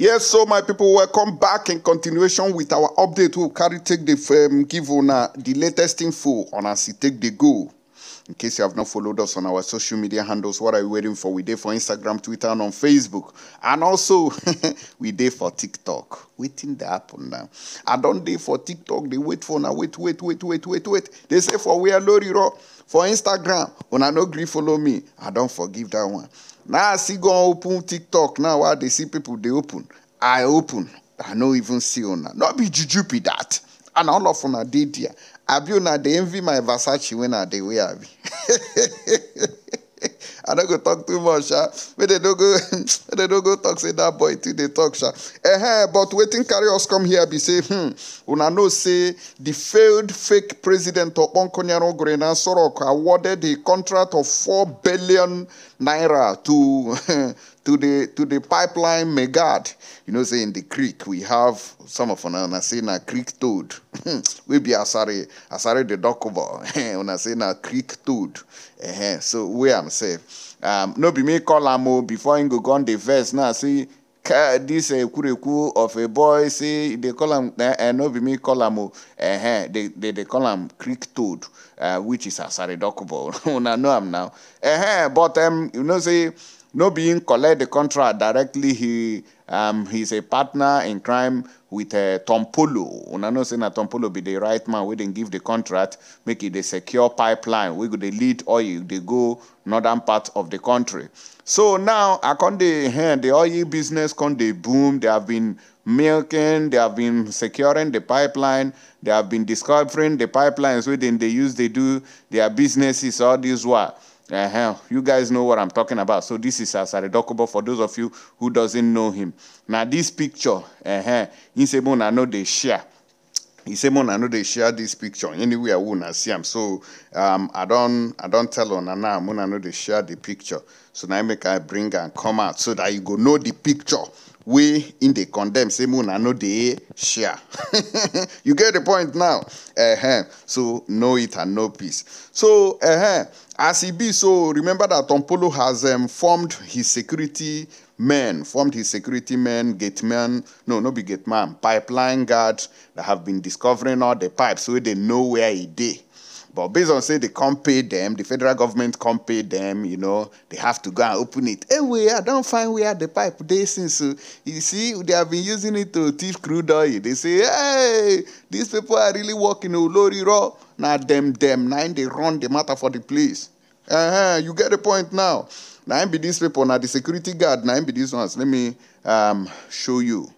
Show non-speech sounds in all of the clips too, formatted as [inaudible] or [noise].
Yes, so my people, welcome back in continuation with our update. We'll carry take the um, give on uh, the latest info on as it take the go. In case you have not followed us on our social media handles, what are you waiting for? We did for Instagram, Twitter, and on Facebook. And also, [laughs] we did for TikTok. Waiting the happen now. I don't day for TikTok. They wait for now. Wait, wait, wait, wait, wait, wait. They say for we are Loriro. For Instagram, when I no grief follow me. I don't forgive that one. now I see go open tiktok now i they see people dey open i open i no even see una no be juju be that and all of una dey there abi una dey envy my versace when i dey wear abi [laughs] i no go talk too much sha ah. make dey no go [laughs] no go talk say dat boy too dey talk sha eh but wetin carry us come here be say hmm una know say di failed fake president okponkonyaru ogre na sorok awarded a contract of four billion naira to [laughs] to the to the pipeline megad. You know, say in the creek we have some of una say na creek toad. [laughs] we be asare asare the docobo. [laughs] Eh, una say na creek toad. Uh-huh. So we am say um no be me call am before I go on the verse now see car this uh, eh, kureku of a boy say they call him uh, uh, no be me call him oh, uh, they, they they call him creek toad uh, which is a asaridokubo I [laughs] know him now uh, but um, you know say no being collect the contract directly he um, he's a partner in crime with uh, Tom Polo. Una know say na Tom Polo be the right man We didn't give the contract make it a secure pipeline We could lead oil They go northern part of the country. So now I come dey eh, the oil business come the boom. They have been milking, they have been securing the pipeline, they have been discovering the pipelines within dem use They do their businesses all this while. Uh-huh. You guys know what I'm talking about. So this is Asare Dokobo for those of you who doesn't know him. Now this picture, uh-huh, I know they share. He say, "Mona, I know they share this picture anywhere. I wanna see him. So um, I don't, I don't tell on now. Man, I know they share the picture. So now I make I bring and come out so that you go know the picture we in the condemn say I no they share [laughs] you get the point now uh-huh. so know it and know peace so uh-huh. as be so remember that tompolo has um, formed his security men formed his security men gate man. no no be man. pipeline guard that have been discovering all the pipes so they know where he dey but based on say they can't pay them, the federal government can't pay them, you know, they have to go and open it. Anyway, eh, I don't find where the pipe they since uh, you see they have been using it to thief crude oil. They say, hey, these people are really working Olori oh, Raw. Now them them nine they run the matter for the police. Uh-huh, you get the point now. Now be these people, now the security guard, now be these ones. Let me um, show you.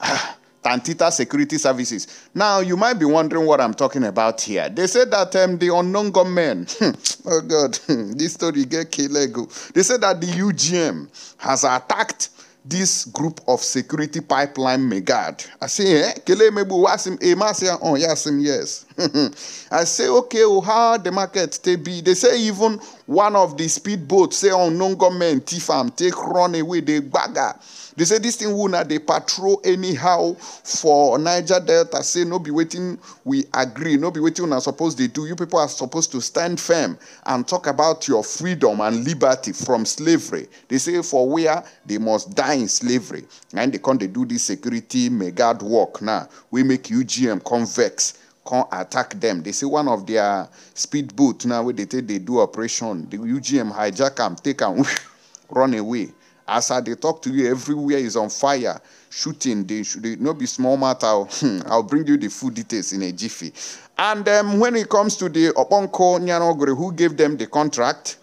Ah, Tantita Security Services. Now, you might be wondering what I'm talking about here. They said that um, the unknown gunmen, hmm, oh God, [laughs] this story get kelego. They said that the UGM has attacked this group of security pipeline megad. I say, eh? Kele mebu wasim emasia eh, on oh, yasim yes. [laughs] I say, okay, well, oh, how the market they be? They say even one of the speedboats, say unknown government, Tifam, take run away, they bagger. They say this thing will not they patrol anyhow for Niger Delta. Say no be waiting, we agree. No be waiting are supposed they do. You people are supposed to stand firm and talk about your freedom and liberty from slavery. They say for where they must die in slavery. And they can't they do this security mega work now. we make UGM convex come attack them. They see one of their speedboat now where they take they do operation. The UGM hijack them, take them, [laughs] run away. As I they talk to you, everywhere is on fire, shooting. They should they, not be small matter. [laughs] I'll bring you the full details in a jiffy. And um, when it comes to the Oponko Nyanogre, who gave them the contract,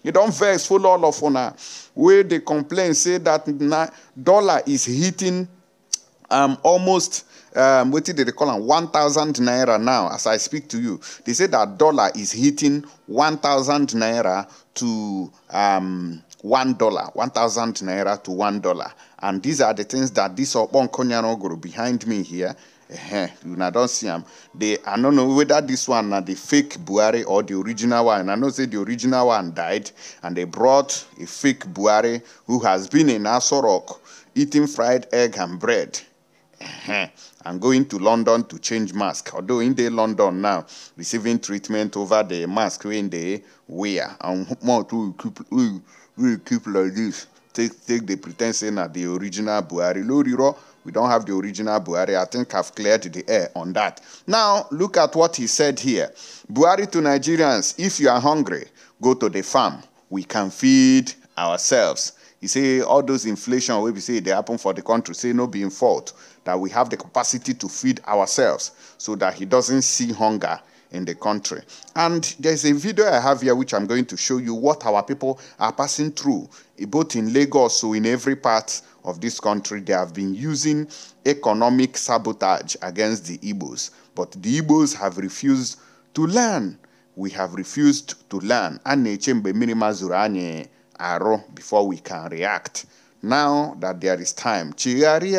[laughs] you don't vex full all of honor. Where they complain, say that dollar is hitting um, almost um, what did they call them? 1,000 naira now, as I speak to you. They say that dollar is hitting 1,000 naira to um, one dollar, 1,000 naira to one dollar. And these are the things that this Obon Konyanogoro behind me here uh-huh. you know, don't see them. They, I don't know whether this one are the fake Buhari or the original one. I know say the original one died, and they brought a fake Buhari who has been in Asorok eating fried egg and bread. Uh-huh and going to London to change mask. Although in the London now, receiving treatment over the mask when they wear. And more to keep, we keep like this. Take, take the pretense that the original Buhari. Loriro, we don't have the original Buhari. I think I've cleared the air on that. Now, look at what he said here. Buhari to Nigerians, if you are hungry, go to the farm. We can feed ourselves. You say all those inflation We see say dey happen for the country say no being fault that we have the capacity to feed ourselves so that he doesn't see hunger in the country. And there's a video I have here which I'm going to show you what our people are passing through, both in Lagos, so in every part of this country. They have been using economic sabotage against the Igbos, but the Igbos have refused to learn. We have refused to learn. and Before we can react now that there is time mbugi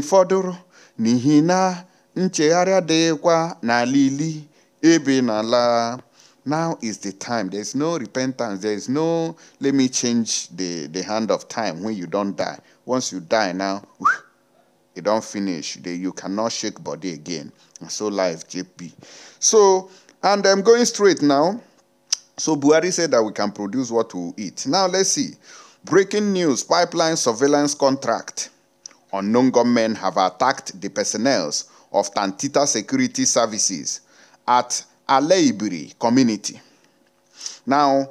mgbu nihina fọdụrụ dekwa na lili dịkwa now is the time there is no repentance there is no let me change the the hand of time when you don't die once you die now don't finish you cannot shake body again so life jp so and i'm going straight now so buhari said that we can produce what we eat now let's see Breaking news pipeline surveillance contract. Unknown gunmen have attacked the personnel of Tantita Security Services at Aleibiri community. Now,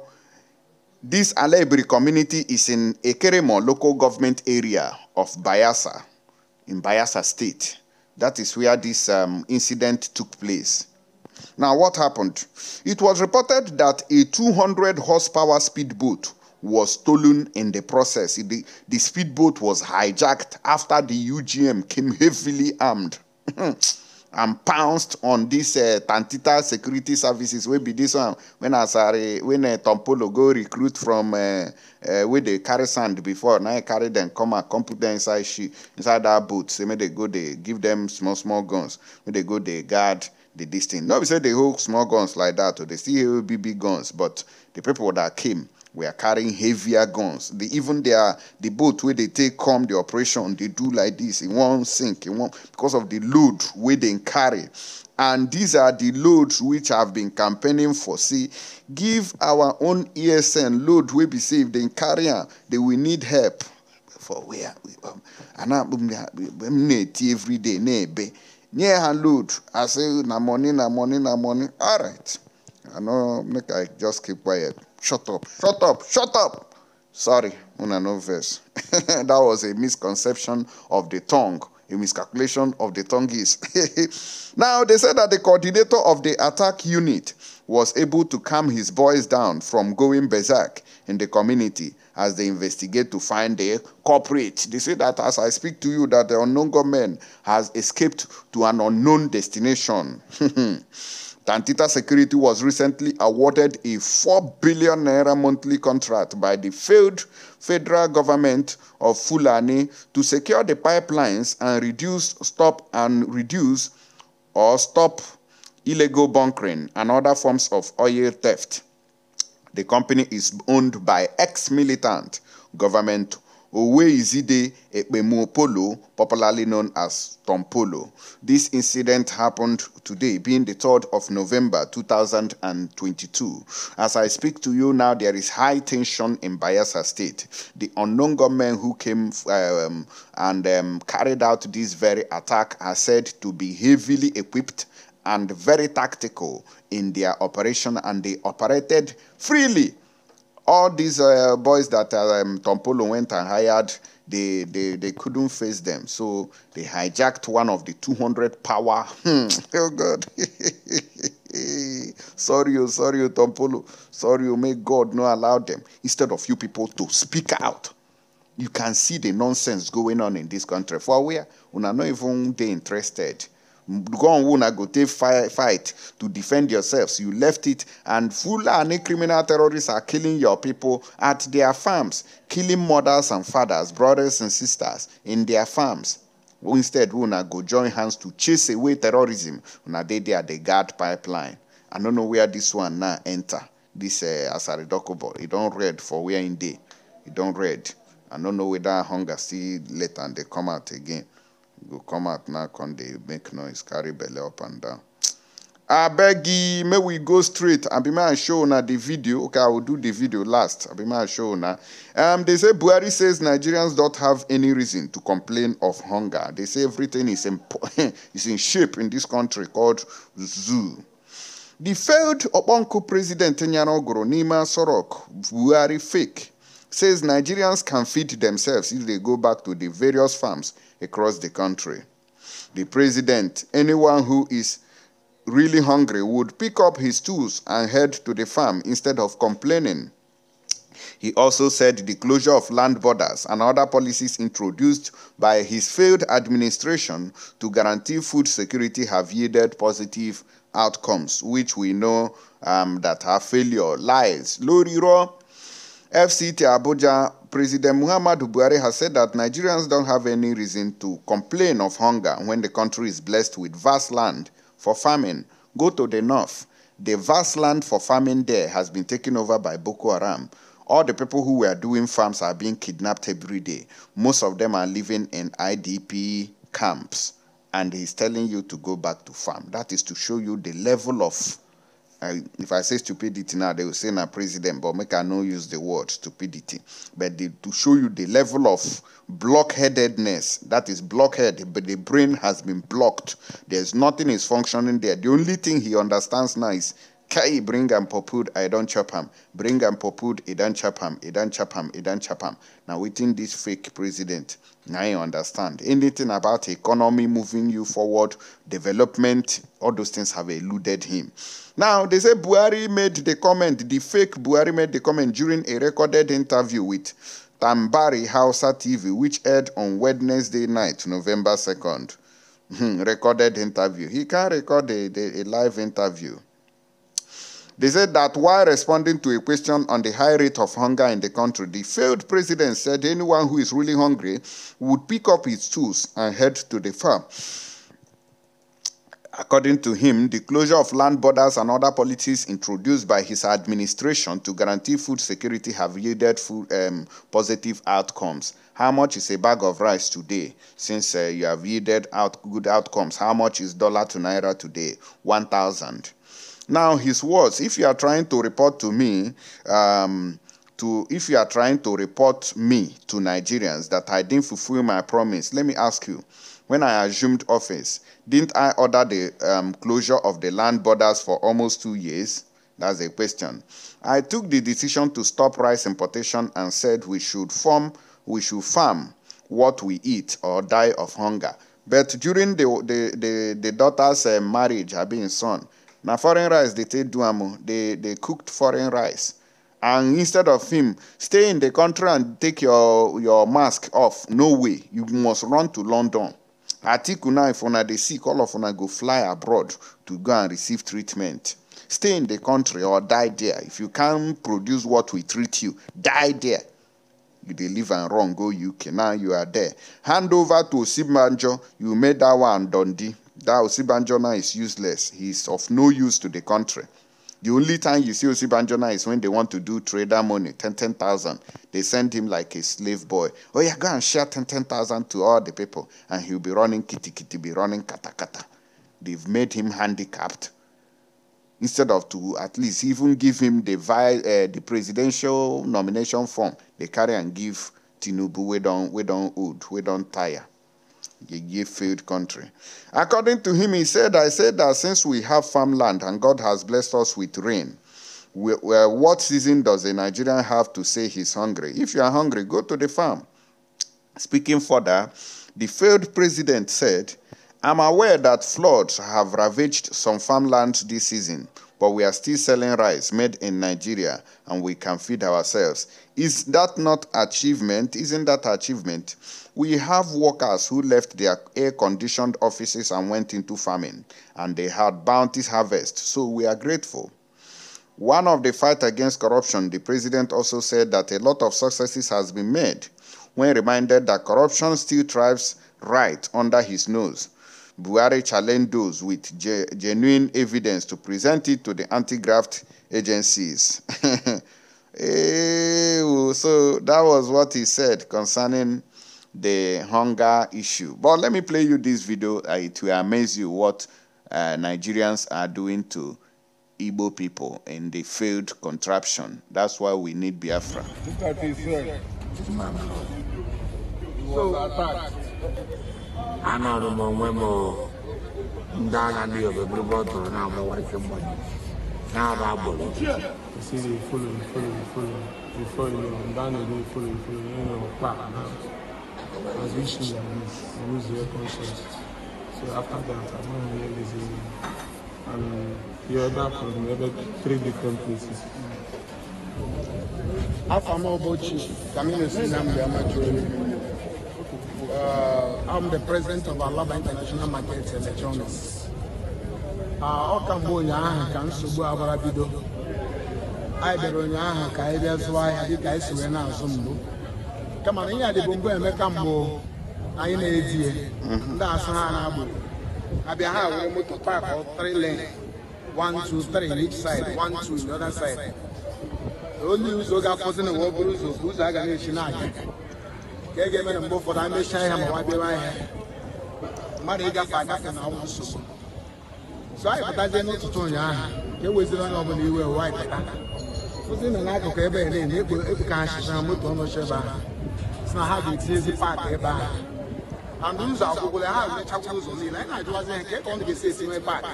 this Aleibiri community is in Ekeremo local government area of Bayasa, in Bayasa state. That is where this um, incident took place. Now, what happened? It was reported that a 200 horsepower speedboat was stolen in the process. The, the speedboat was hijacked after the UGM came heavily armed [laughs] and pounced on this uh, Tantita Security Services. Will be this one when Asare, uh, when uh, Tompolo go recruit from uh, uh, where they carry sand before. Now I carry them, come and come put them inside she inside that boat. So may they go, they give them small small guns. When they go, they guard the this thing. Not be say they hold small guns like that, or they still hold big big guns, but the people that came were carrying heavier guns. They, even their the boat where they take come the operation, they do like this. in one sink. In one because of the load where they carry. And these are the loads which have been campaigning for. See, give our own ESN load we be saved. They carry They will need help. For where? And I'm every day. near and load i say na money na money na money all right i know. make i just keep quiet shut up shut up shut up sorry una no verse [laughs] that was a misconception of the tongue a miscalculation of the tongue is [laughs] now they said that the coordinator of the attack unit was able to calm his boys down from going berserk in the community as they investigate to find the culprit. They say that as I speak to you, that the unknown government has escaped to an unknown destination. [laughs] Tantita Security was recently awarded a 4 billion naira monthly contract by the failed federal government of Fulani to secure the pipelines and reduce, stop and reduce or stop illegal bunkering and other forms of oil theft. The company is owned by ex-militant government Oweyizide Ekpemopolo, popularly known as Tompolo. This incident happened today, being the 3rd of November 2022. As I speak to you now, there is high tension in Bayelsa State. The unknown gunmen who came um, and um, carried out this very attack are said to be heavily equipped and very tactical in their operation and they operated freely. All these uh, boys that um, Tompolo went and hired, they, they, they couldn't face them. So they hijacked one of the 200 power. Hmm, oh, God. [laughs] sorry, oh, sorry, oh, Tompolo. Sorry, oh, may God not allow them. Instead of you people to speak out. You can see the nonsense going on in this country. For where? are not even they interested Go on una go take fight to defend yourselves you left it and full and criminal terrorists are killing your people at their farms killing mothers and fathers brothers and sisters in their farms instead una go join hands to chase away terrorism una they there the guard pipeline i don't know where this one now enter dis You don't read for where day, you don't read. i don't know whether hunger see later they come out again go come out now come they make noise carry belly up and down I beg you, may we go straight abi may i show now the video okay i will do the video last abi may i show now. um, they say Buari says nigerians don't have any reason to complain of hunger they say everything is in, [laughs] is in shape in this country called zoo the failed oponku president nyanogoro nima sorok Buari fake says nigerians can feed themselves if they go back to the various farms across the country. The president, anyone who is really hungry, would pick up his tools and head to the farm instead of complaining. He also said the closure of land borders and other policies introduced by his failed administration to guarantee food security have yielded positive outcomes, which we know um, that are failure, lies, Loriro. FCT Abuja President Muhammadu Buhari has said that Nigerians don't have any reason to complain of hunger when the country is blessed with vast land for farming. Go to the north. The vast land for farming there has been taken over by Boko Haram. All the people who were doing farms are being kidnapped every day. Most of them are living in IDP camps. And he's telling you to go back to farm. That is to show you the level of I, if I say stupidity now, they will say na president, but make I no use the word stupidity. But to show you the level of blockheadedness, that is blockhead, but the brain has been blocked. There's nothing is functioning there. The only thing he understands now is Kai bring am popud, I don't chop him. Bring am I don't chop I don't chop I don't chop him. Now within this fake president now you understand. Anything about economy moving you forward, development, all those things have eluded him. Now, they say Buhari made the comment, the fake Buhari made the comment during a recorded interview with Tambari Hausa TV, which aired on Wednesday night, November 2nd. Hmm, recorded interview. He can't record a, a, a live interview. They said that while responding to a question on the high rate of hunger in the country, the failed president said anyone who is really hungry would pick up his tools and head to the farm. According to him, the closure of land borders and other policies introduced by his administration to guarantee food security have yielded food, um, positive outcomes. How much is a bag of rice today? Since uh, you have yielded out good outcomes, how much is dollar to naira today? 1,000. Now, his words, if you are trying to report to me, um, to if you are trying to report me to Nigerians that I didn't fulfill my promise, let me ask you, when I assumed office, didn't I order the um, closure of the land borders for almost two years? That's a question. I took the decision to stop rice importation and said we should farm, we should farm what we eat or die of hunger. But during the the the, the daughter's uh, marriage, her being son, na foreign rice they take duamo, they they cooked foreign rice and instead of him stay in the country and take your your mask off no way you must run to london atiku now if una dey sick all of una go fly abroad to go and receive treatment stay in the country or die there if you can produce what we treat you die there you deliver and run go uk now you are there hand over to osimbanjo you made that one dundee that Osibanjona is useless. He's of no use to the country. The only time you see Osibanjona is when they want to do trader money, 10,000. 10, 000. they send him like a slave boy. Oh, yeah, go and share 10,000 10, 000 to all the people. And he'll be running kitty kitty, be running kata kata. They've made him handicapped. Instead of to at least even give him the, vi- uh, the presidential nomination form, they carry and give Tinubu, we don't, we don't old, we don't tire a gift filled country. According to him, he said, I said that since we have farmland and God has blessed us with rain, we, uh, what season does a Nigerian have to say he's hungry? If you are hungry, go to the farm. Speaking further, the failed president said, I'm aware that floods have ravaged some farmlands this season but we are still selling rice made in Nigeria and we can feed ourselves. Is that not achievement? Isn't that achievement? We have workers who left their air conditioned offices and went into farming, and they had bounties harvest, so we are grateful. One of the fight against corruption, the president also said that a lot of successes has been made when reminded that corruption still thrives right under his nose. Buhari challenged those with genuine evidence to present it to the anti-graft agencies. [laughs] Eh, oh, so that was what he said concerning the hunger issue. But let me play you this video. Uh, it will amaze you what uh, Nigerians are doing to Igbo people in the failed contraption. That's why we need Biafra. Look at this, sir. This man. So, attacked. anọrụm onwe m ndị agha ndị obebiri bọtụrụ na-amụwa ike mmanya na-aba agbụrụ see they follow, they follow, they follow. They follow, you know, you you know, back now. As we should your conscience. So after that, I don't hear And you order from maybe three different places. How more about you? Camino Sinam, the I'm the president of Alaba International Market Electronics. Ah, ọ ka ụnyaahụ ka nsogbu agbara bido anyị bịara ụnyaahụ ka anyị bịa zụọ ahịa dịka anyị si na-azụ mbụ kama na ihe a mbụ emeka mbụ anyị na-edi ya ndị asa ha na-agbụrụ abịa ha were moto pak three lane one two three each side one two the other side onye ụzọ ga-afọzi na ụwa ụzọ ụzọ a ga na-echi na-aga ka e ga-eme na mgbe ụfọdụ a mechaa ya ma nwa bịawa ahịa mmadụ ịgafe agafe na ọnwụ nsogbu so anyị pụtazie n'ụtụtụ ụnyaahụ ka e weziri onye ọbụla iwe ụwa anyị pụta nọ n'akụkụ ebe a na-enye ekpo ka achịcha na moto ọnọchi ebe ahụ si na ha ga-etinyezi paakị ebe ahụ andụ ụzọ agwụgwụla ha emechakwụ ụzọ niile anyị na-ajụwazi ha ka ọ ga-esi esi nwee paakị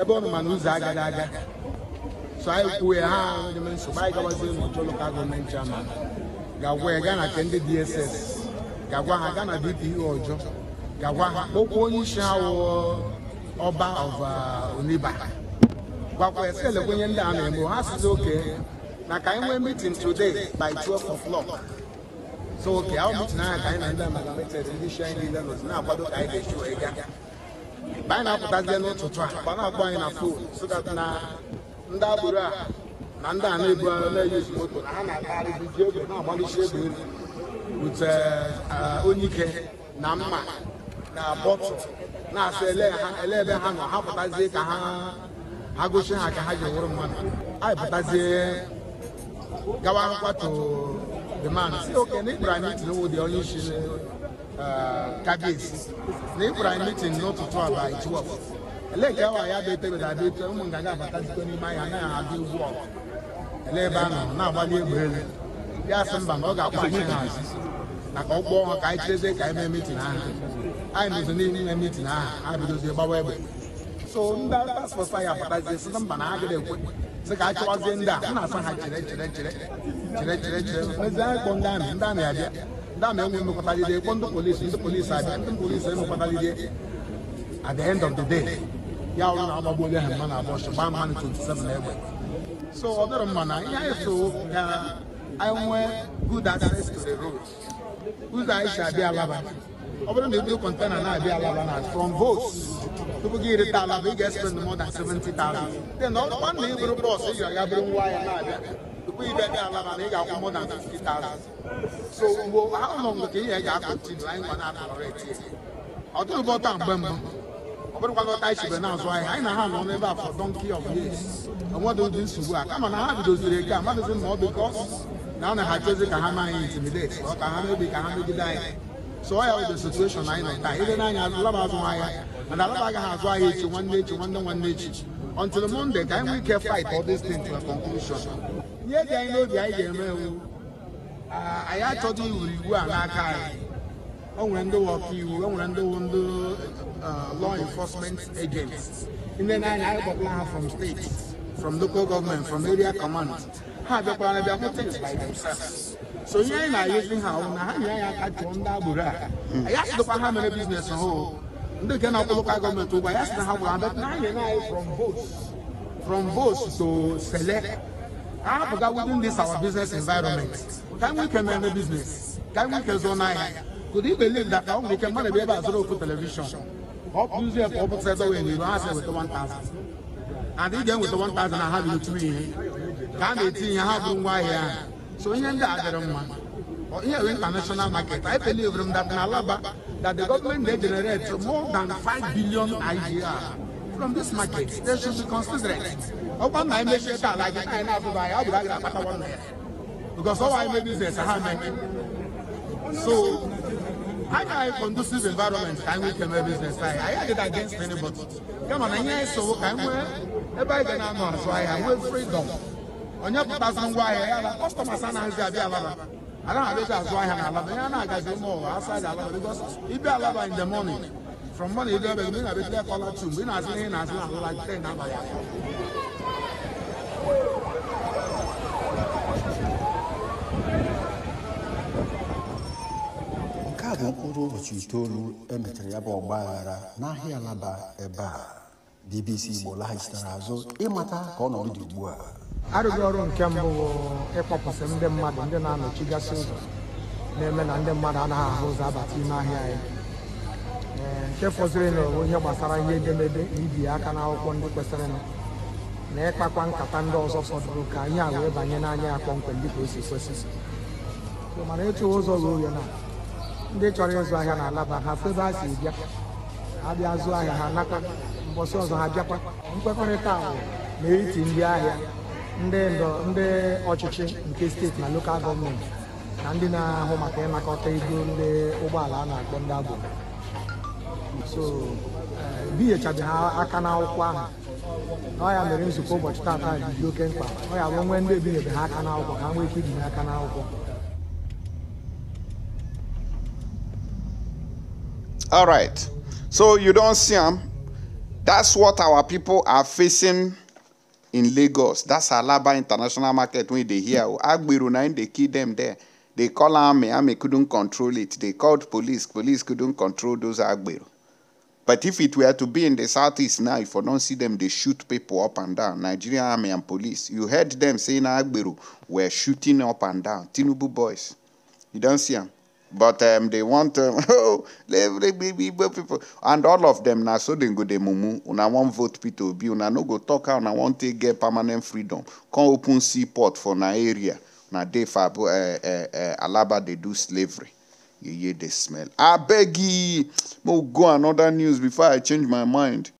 ebe ọ nọ mana ụzọ agaghị aga so anyị kwuo ya ha nwere nsogbu anyị gawazie n'ụjọ lokal gọọmenti ama ga-agwa na nke ndị DSS ga-agwa ha gaa na DPO e ga-agwa ha onye isi ha ọba of uh, Oniba gwakwa ya elekwenye ndị a na-eme ha sịzi oke na ka anyị nwee meeting today by 12 o'clock so oke ahụ ka anyị na ndị ndị isi na-akwado ka anyị ga-eji na ndị a na-ebugharị na-eyizi moto na ha na-agagharịzi ji egbe na-agbalịsi egbe elu wute e, onye ike na mma na bọtụ na-asị ele ebe ha nọ ha pụtazie ka ha gosi ha ka ha ji wụrụ mmadụ anyị pụtazie gawa nkwatu demand si oke na ịkpụrụ anyị mitin wụ dị onye isi e, kabis na ịkpụrụ anyị mitin n'ụtụtụ abalị 12 ele nke awa ya bụ etebedadị ụmụ nganga abatazikọ n'ime anyị anaghị adị ugbu ọgụ ele ebe a nọ na-agbali egbe elu ya asị mba na ọ ga-akpọchi ha azụ maka ụgbọ ọnwa ka anyị cheze ka anyị mee mitin aha anyị mezo niile ime mitin aha ha bidozie gbawa egbe so ndị paspọsụ anyị abatazie sị mba na ha ekwe sị ka a chọwazie ndị a na-asa ha chere chere chere chere chere chere mezie anyị ndị amị ndị amị abịa ndị amị enwe emekọtalide kpọ ndị polisi ndị polisi abịa ndị polisi emekọtalide at the end of the day ya ọrụ na ọgbagbuo onye ha mma na gbaa mmanụ 27 egbe so ọ dịrị mma na ihe anyị so ka anyị good access to the road ụzọ anyị si abịa alaba ọ bụrụ na ebido kọntena na-abịa alaba na from votes tupu gị rita alaba ị ga-expend more than seventy thousand. then ọ bụkwa na ị bụrụ bọs ị ga-aga bụrụ nwa ya na-abịa tupu ị bịa alaba na ị ga-akwụ more than thousand. so mgbe ahụ nọ mgbe ka ihe ga-akọntinu anyị nwa na-akọrọ ọ dịrị bọta mgbe mbụ ọbụrụkwa ghọta anyị chibere na a for donkey of years onwedị ụdị nsogbu a kama na ha bidoziri eke a mmadụzi na ọ dị ka na ọ na ha chezi ka ha ma anyị intimidate ọ ka ha mebi ka ha megide anyị so ọ ya bụ the situation anyị nọ taa ile n'anya alaba azụ ahịa mana alaba agaghị azụ ahịa echi nwanne echi nwanne nwanne echi until Monday ka anyị nwee ike fight all this thing to a conclusion ihe dị anyị n'obi anyị ga-eme ewu anyị achọghị iwuru iwu a n'aka anyị o nwere ndị ọkaiwu o nwere ndị ndị law enforcement agents ndị na-anya agbakwa ha from state from local government from area command ha abịakwara na bịakwa things by themselves so ihe anyị na-ayụzi ha ahụ na ha nyere anyị aka chụọ ndị agbụrụ a anyị asịdokwa ha mere biznes ha ndị nke na-akwụ lokal gọọmenti ụgwọ anyị asị na ha gwara mbet na anyị anyị from votes from votes to select ahapụga within this our business environment ka anyị nwee ike mere business ka anyị nwee ike zụọ n'ahịa Could you believe that I only can manage about zero for television? Or usually a couple sets away and you don't answer with the 1,000. And again with the 1,000 I have you three. Can they think you have why here? So in the other one. Or here international market, I believe from that in Alaba that the government they generate more than five billion a from this market. They should be considerate. Open my message like I have to buy, I'll be like that. Because all I make business, I have So anya conducive environment ka anyị nwee ike business I. anyị adịghị against anybody kama na ihe anyị sowo so anyị nwee ebe anyị ga na-anọ azụ ahịa nwee freedom onye pụtazi ngwa ahịa ya na kọstọmas anaghịzi abịa alaba have abịazi azụ ahịa na alaba ihe more. agazi ụmụ ụwa because it be a lot in the morning from morning ịdị ebe gị ị na-abịa tlee kọla tu mgbe ị na-azụ ihe ị na-azụ na ten abalị atọ Nke bụ mkpụrụ ụbọchị itoolu emechara ya bụ ọgba aghara n'ahịa laba ebe a BBC Igbo laghachitara azụ ịmata ka ọnọdụ dị ugbu a arụghị ọrụ nke mbụ bụ ịkpọpụsị ndị mmadụ ndị na anọchi gasị ụzọ na-eme na ndị mmadụ anaghị ahụ ụzọ abata ime ahịa anyị nke fọziri na ihe gbasara ihe edemede ibi aka n'akwụkwọ ndị kwesịrịnụ na ịkpakwa nkata ndị ọzọ fọdụrụ ka anyị a wee banye n'anya ya kpọmkwem dịka o si kwesị mana echeghị ụzọ ruo ya na ndị chọrọ ịzụ ahịa na-alaba ha febe ha si bịa abịa zụọ ahịa ha naka mbọsị ọzọ ha bịakwa nkwekọrịta ahụ n'etiti ndị ahịa ndị ndọ ndị ọchịchị nke steeti na lokal gọọmenti na ndị na-ahụ maka ịnakọta ego ndị ụgbọala a na-akpọ ndị abụ so ebinyechabeghị eh, ha aka n'akwụkwọ ahụ ọ ya mere nzukọ ụbọchị taata dị oke mkpa ọ ya bụ nwee ndị ebinyebe ha aka n'akwụkwọ ka ha nwee ike ibinye aka n'akwụkwọ All right. So you don't see them. That's what our people are facing in Lagos. That's Alaba International Market when they hear oh, Agbiru they kill them there. They call army, army couldn't control it. They called police, police couldn't control those Agbiru. But if it were to be in the southeast now, if you don't see them, they shoot people up and down. Nigerian army and police. You heard them saying Agbiru were shooting up and down. Tinubu boys. You don't see them. But um, they want, um, [laughs] oh, people. And all of them, now, so they go to mumu, una want vote P2B, una no go talk, una want to get permanent freedom. Come open seaport for na area. Now, they fab, uh, eh, uh, eh, uh, eh, Alaba, they do slavery. You hear the smell. I beg you. go another news before I change my mind.